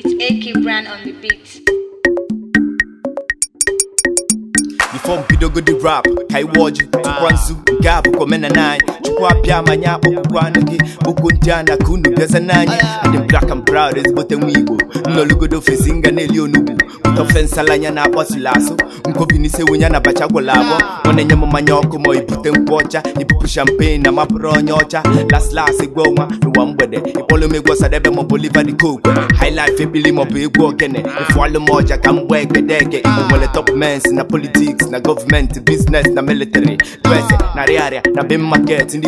It's AK Brand on the beat. Before Bidogodi rap, Kaiwoji, Tukwansu, Gabu, Komena 9. Chukwu abịa ma nye akpụkpọ anụ gị okwu ndị a na unu bịaza n'anya ndị black and proud ezigbote nwa igbo nnọlụgodo ofesi nga na-eli onugbu ụtọ fensala anya na akpọsila asụ nkobinise wunye na bacha gwụla abụọ ọ na-enye mmanya ọkụ ma ibute nkwụ ọcha ibupu champagne na mapụrụ onye ọcha laslas gwa ọnwa n'ụwa mgbede ịkpọlụ m egwu ọsadebe maọbụ oliva dị koku highlife ebili maọbụ egwu ogene ịfụọlụ m ọja ka top mens na politiks na gọọmenti biznes na military dwese na rịarịa na bin maket ndị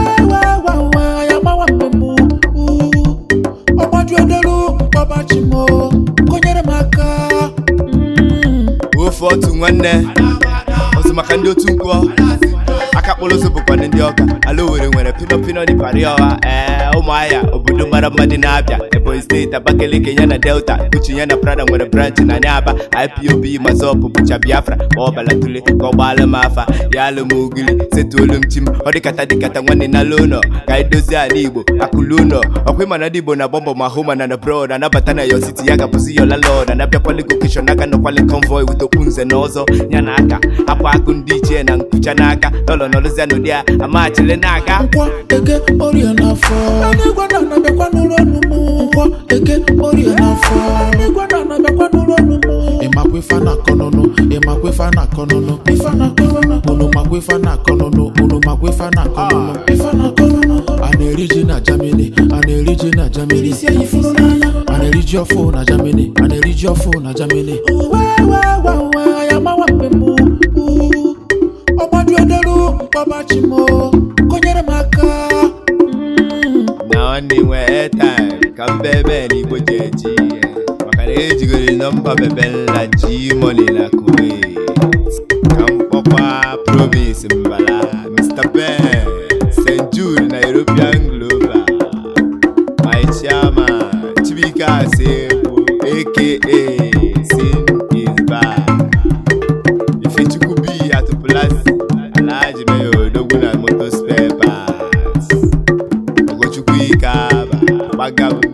obi odolu kpọbachimo kụnyere m aka ofe otu nwanne ọzọ maka ndị otu mkpọ aka kpọrọ ozu ndị ọka ala owere nwere pino pino dị pari ọha ee ụmụahịa obodo mara mma dị na-abịa Ebonyi steeti Abakaliki ya na Delta Uche ya na Prada nwere branchị na aba IPOB Mazọpụ bụcha Biafra ma ọ balatule ka ọ gbaala m afa ya alụ m setuolu m chi m ọ nwanne na ala ka anyị dozie ala Igbo akụlụ ụlọ ọkwa ịma na ndị Igbo na bọmbọ ma hụ ma na na brod anabata na yo siti ya gabụzi yola lod anabịakwali gokeshon aka nọkwali konvoi wutokwu nze na ọzọ ya na aka hapụ akụ ndị ichie na nkucha n'aka na nọrụzia n'ụdị a amachile n'aka eke ori n'afọ igwe na na-abịakwa n'ụlọ na-akọ ịmakwa ife na-akọ ife na na na ife na ah, a na-eri na Germany a na-eri ji a na-eri ọfụ na Germany a na-eri ji ọfụ na Germany ọgbadiodolu mkpọbachimo konyere m aka na mm, ọ na-enwe time ka mbebe na igbo ji eji ihe maka na ejigoro nọmba bebela ji moni na kuwait ka m kpọkwa promis mbala mr ben st jude na european global my chibika chibuike asegbu aka sin is back ifechukwu b atụpụlasị alhaji meyo odogwu na motospare parts ogochukwu ike aba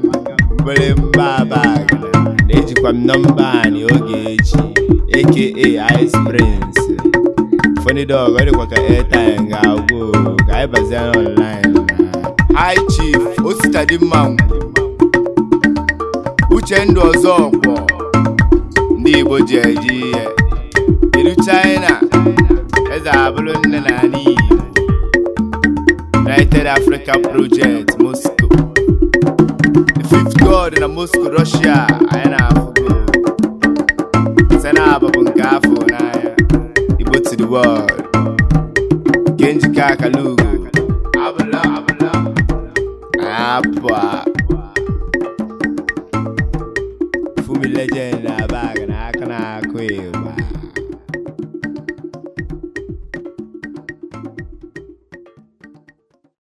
obere mbaabag na-ejikwa m nọmba anyị oge echi aka ice prince funny dog ọ dịkwa ka airtime ga-agwụ ka anyị bazie online hi chief osita uche ndụ ọzọ ọgwọ ndị igbo ji eji ihe kedu china eze abụrụ nne na ala united africa project Igor na Moscow Russia anyị na-afụgo site n'abụbụ nke afọ n'anya Igbo to the world nke njikọ akala apụ a Fumi legend na bag na